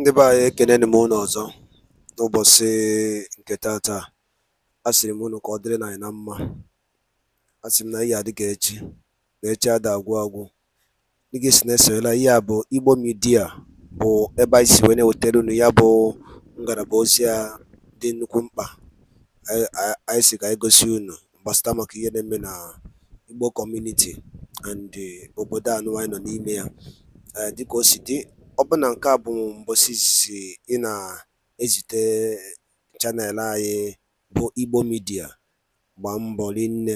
ndị be anyị ekeneni m unu ọzọ n'ụbọchị nke tata a sịrị m unu ka ọ dịrị na anyị na mma Asịrị m na ihe adịghị echi na echi ada agwụ agwụ dịgị si na esoyela ihe a bụ igbo midia bụ ebe anyị si wee na-ewetara unu ya bụ ngalaba ozi a dị nnukwu mkpa anyị si ka anyị gosi unu gbasata maka ihe na-eme na igbo kọmuniti and obodo anụ anyị nọ n'ime ya dịka o si dị ọbụna nke a bụ mbọsị izizi ị na-ezite chanel anyị bụ Igbo midia gbaa mbọ rinne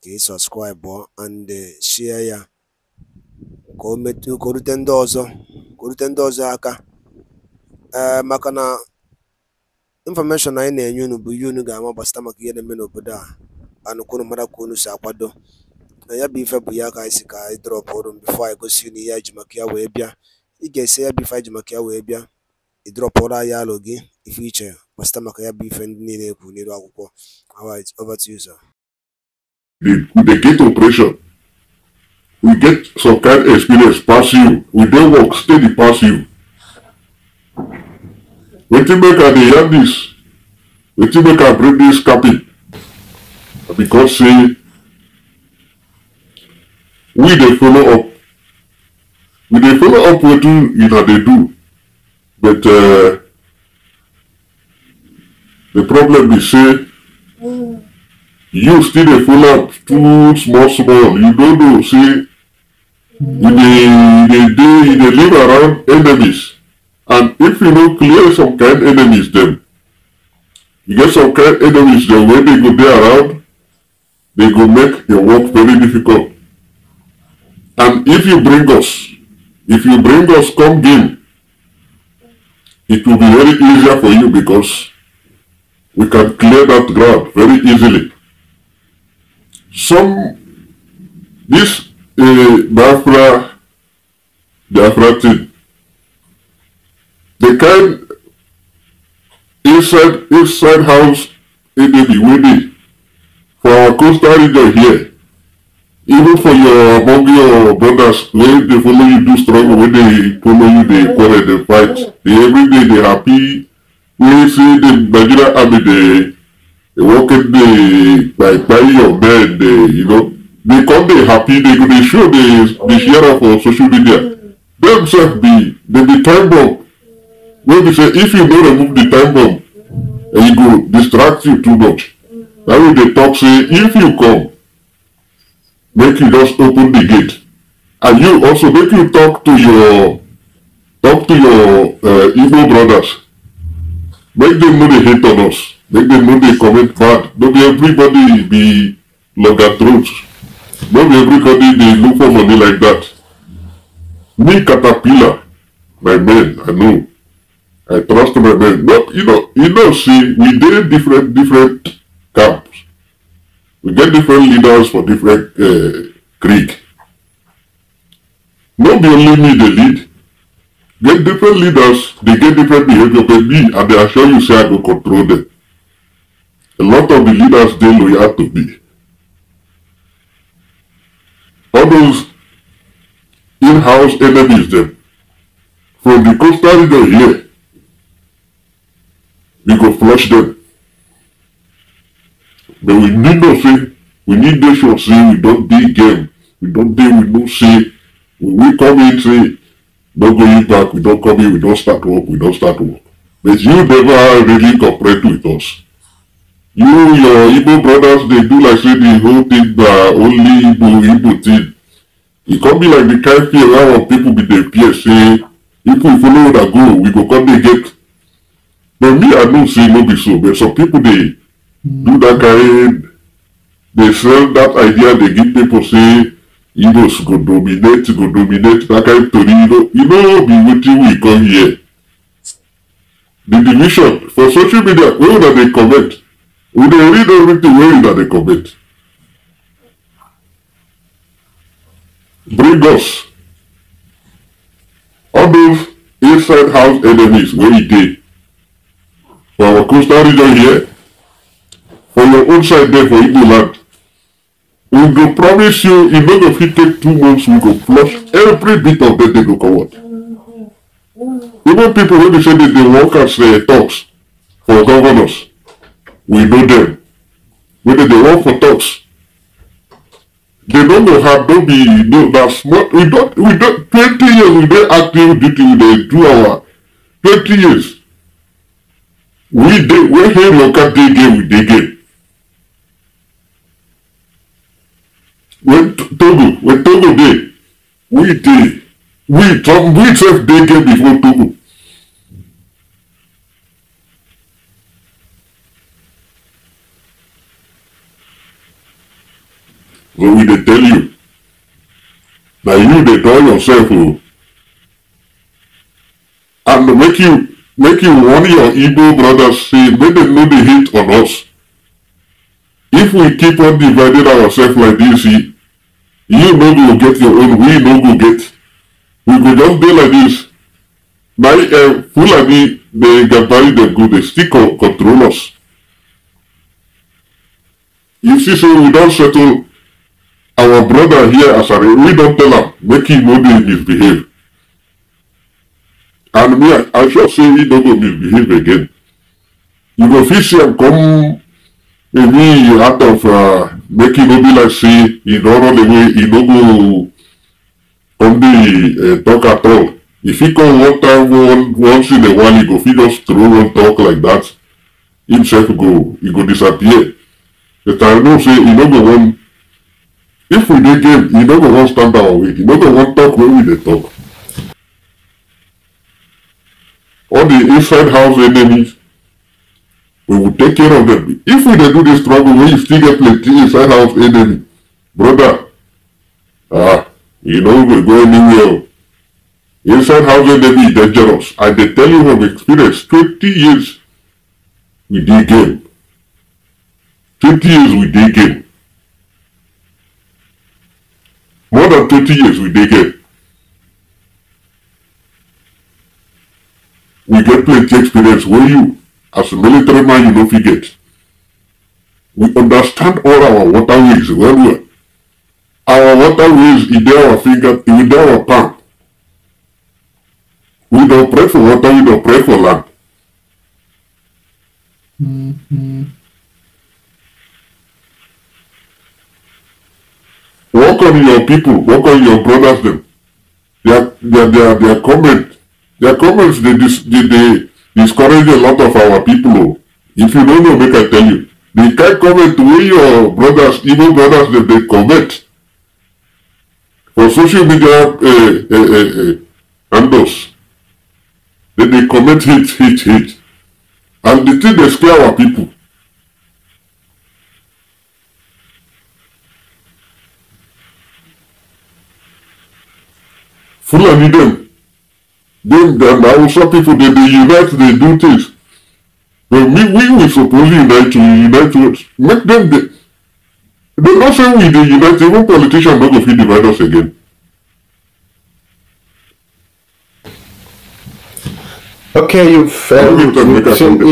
ka ị sọbskraịbụ and sie ya ka o rute ndị ọzọ aka eh, maka na infọmeshọn anyị na-enye unu bụ ihe unu ga-ama gbasịta maka ihe na-eme n'obodo a anụ kwunu mara ka unu si akwado na ya bụ ife bụ ya ka anyị si ka anyị drọpụ ọrụ bifo anyị gosi unu ihe ji maka ya wee bịa ị ga-esi ya bụ ife ji maka ya wee bịa ị drọpụrụ alụ gị ife iche gbasịta maka ya bụ ife ndị niile ekwu n'elu akwụkwọ we get some kind of experience pass you we don't work steady pass you wetin make i dey hear this Wait till make i bring this capping because say we dey follow up we dey follow up wetin una dey do but uh, the problem be say you still dey follow up too small small you no know say you dey you dey dey you dey live around enemies and if you no clear some kind enemies dem you get some kind enemies dem wey dey go dey around dey go make your work very difficult and if you bring us If you bring us come game, it will be very easier for you because we can clear that ground very easily. Some, this uh, Biafra, Biafra thing, the kind inside, inside house in the Widi for our coastal region here, even for your among your brothers when they follow you do struggle when they follow you they quarrel the fight they every day they happy We see the nigerian army dey working the by by your men you know they come they happy they go dey show they dey share am for uh, social media them be they be time bomb wey say if you don't remove the time bomb will go distract you too much na why they talk say if you come make you just open the gate and you also make you talk to your talk to your uh, brothers make them know they hate on us make them know they commit bad not be everybody be that truth. be everybody they look for money like that me caterpillar my men i know i trust my men but you know you know see we did different different camps We get different leaders for different uh, creed. No be only me dey lead. Get different leaders, they get different behavior, but me, and they assure you say I go control them. A lot of the leaders they dey loyal to be. All those in-house enemies them. from the coastal region here, we go flush them. But we need not say, we need make sure say we don't do game. We don't do. we don't say, when we come in say, no going back, we don't come in, we don't start work, we don't start work. But you never really cooperate with us. You, your Igbo brothers, they do like say the whole thing na only Igbo, Igbo thing. E come be like the kind a lot of people be dey fear say, if we follow that go, we go come dey get. But me, I know say no be so, but some people they. do that kind they sell that idea they give people say Igbos go dominate go dominate that kind to you know you know be waiting, we come here the division for social media Where una they comment we dey read everything Where that they comment bring us all those inside house enemies wey e did. for our coastal region here on your own side there for igbo land we go promise you Even if it fit take two months we go flush every bit of that they go comot even people wey be say they dey work as uh, eh, talks for governors we know them wey they work for talks they don't know how to be no na small we don't we don't. twenty years we don't active duty we do our twenty years we dey wey hail local dey game we dey game when togo when togo day, we day, we trump we sef day get before togo so we dey tell you that you dey tell yourself o oh. and make you make you warn your igbo brothers say make dem no dey hate on us if we keep on dividing ourselves like dis you no go get your own we no go get we go just be like this. na uh, eh, fulani the gantari dem go dey still con control us you see so we don't settle our brother here as a we don't tell am make he no dey misbehave and me i shall say he no go misbehave again you go fit see am come If me, you have to uh, make it no like say, in order the way, it no go on uh, talk at all. If he come one time, one, once in a while, he go, he just throw and talk like that, himself go, he go disappear. But I know say, he no go one, if we dey game, he no go one stand our way, he no go one talk when we they talk. All the inside house enemies, We will take care of them. If we do this struggle, we still get plenty inside house enemy. Brother, ah, you know we go anywhere. Inside house enemy is dangerous. I they tell you from experience, 20 years we did game. 20 years we did game. More than 20 years we did game. We get plenty experience. Where you? As a military man, you don't forget. We understand all our waterways well well. Our waterways is there our finger, is there our palm. We don't pray for water, we don't pray for land. Mm -hmm. Work on your people, work on your brothers them. Their, their, their, their They their comments, they, they, they discourage a lot of our people oh. if you don't know make i tell you the kind comment wey your brothers igbo brothers dem they comment for social media uh, uh, uh, handles dem dey comment hate hate hate and the thing they scare our people fulani them. that now some people they, they unite, they do things. But we we were supposed to unite to unite to make them they do not say we they unite, even politicians not going to divide us again. Okay, you've failed. You it yourself, you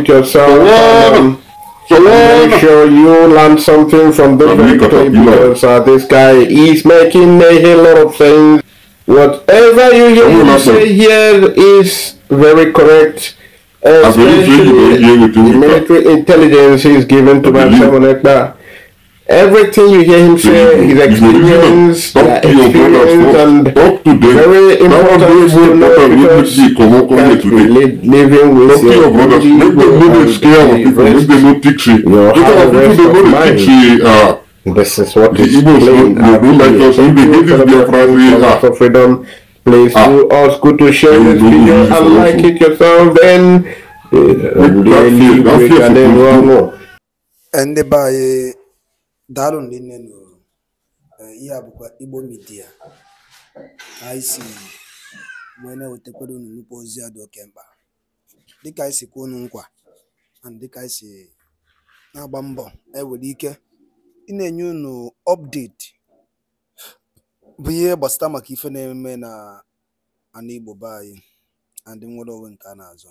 it yourself. so make sure you learn something from the very because uh, this guy is making a lot of things. Whatever you hear is say here is very correct. Especially the military intelligence is given to my Everything you hear him say, his experience, experience and very important because living with your brothers. Make them scared of people. Make them This is what the is The freedom. Please ah. do us good to share this video and like it yourself then. Ndị be anyị daalụ ndị nne nụrụ ihe a Igbo midia wee na-ewetakwara ozi a dị oke mkpa dịka kwuo nkwa na dịka na-agba mbọ ewere eh, ike ị na-enye unu ọpdeti bụ ihe gbasata maka ife na-eme na ana Igbo be anyị ndị nwere onwe nke a na-azọ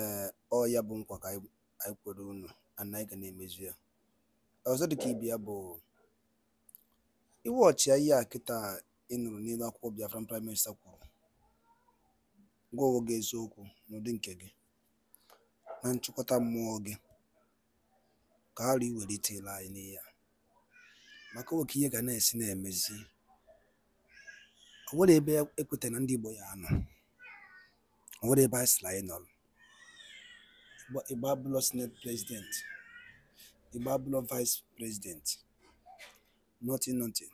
ee ọ ya bụ nkwa ka anyị kwere unu ana anyị ga na-emezu ya ọzọ dịka ibe ya bụ iwe ọchịa ihe a kịta ị nụrụ n'elu akwụkwọ Biafra, prime minista kwuru gwa onwe gị eziokwu n'ụdị nke gị na nchịkọta mmụọ gị ka arụ iwelitela anyị n'ihe maka nwoke ihe ga na-esi na-emezi ọ nwere ebe ekweta na ndị Igbo ya anọ ọ nwere ebe anyị sịrị anyị nọrọ Igbo abụlọ senate president Igbo abụlọ vice president nothing nothing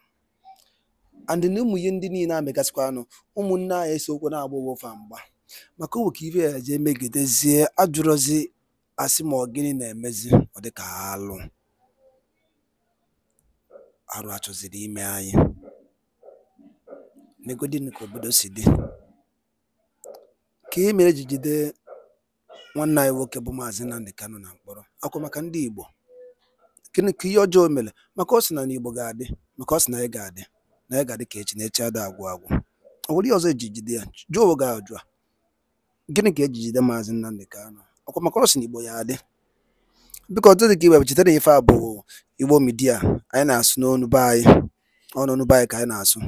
and na ụmụ ihe ndị niile amegasịkwa anụ ụmụnne anyị esiokwu na-agba ofe mgba maka owoke ibe ya jee megidezie ajụrụzi asị ma ọ gịnị na-emezi ọ dịka alụ arụ achọziri ime anyị negodin ka obodo si dị ka e mere ji jide nwanne anyị nwoke bụ maazị Nnamdi Kanu na mkpọrọ akwa maka ndị Igbo gịnị ka ihe ọjọọ mere maka ọ sị na n'Igbo ga-adị maka ọ sị na anyị ga-adị na anyị ga-adị ka echi na echi ada agwụ agwụ ọ nwere ihe ọzọ ejijide jide ya jụọ ga-ajụ gịnị ka ejijide jide maazị Nnamdi Kanu ọkwa maka ọrụ si Igbo ya adị biko ọtụtụ dị ka iwebụ chetara ife a bụ Igbo midia anyị na-asụ n'onu be anyị ọnụnụ be anyị ka anyị na-asụ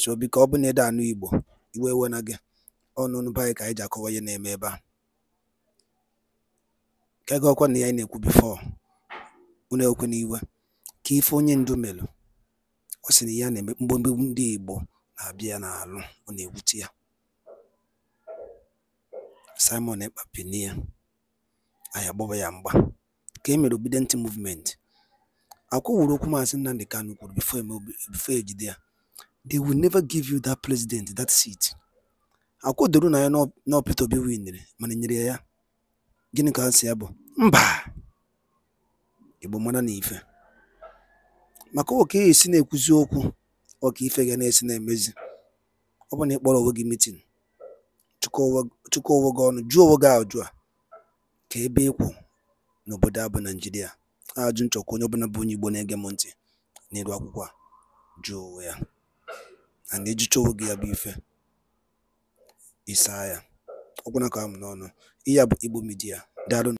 so biko ọ bụ na ede anụ Igbo Igbo ewe na gị ọnụnụ be anyị ka anyị ji akọwa ihe na-eme ebe a ka ego ọkwa na ya anyị na-ekwu bifo unu ekwe n'iwe ka ife onye ndu melụ ọ sị na ya na-eme mgbomgbom ndị Igbo na-abịa ya n'alụ ọ na-ewute ya Simon Ekpapinia anyị agbawa ya mgba ka e mere Obedient Movement akwụwụrụ okwu Maazị Nnamdi Kanu kwuru before e before ejide ya they will never give you that president that seat doro na ya na Peter Obi winere mana e nyere ya ya gịnị ka ha si ya bụ mba Igbo mara na ife maka oke esi na-ekwuzi okwu ọka ife ga na-esi na-emezi ọ bụ na ịkpọrọ onwe gị mitin chịkọọ gị ọnụ jụọ onwe gị ajụ a ka ebe ịkwụ e n'obodo abụ naijiria ajụ nchọkwa onye ọbụla bụ onye Igbo na-ege m ntị n'elu akwụkwọ a jụọ ya a na-ejicha onwe gị ya bụ ife isaa ya ọkwụna ka m n'ọnụ ihe a bụ Igbo Media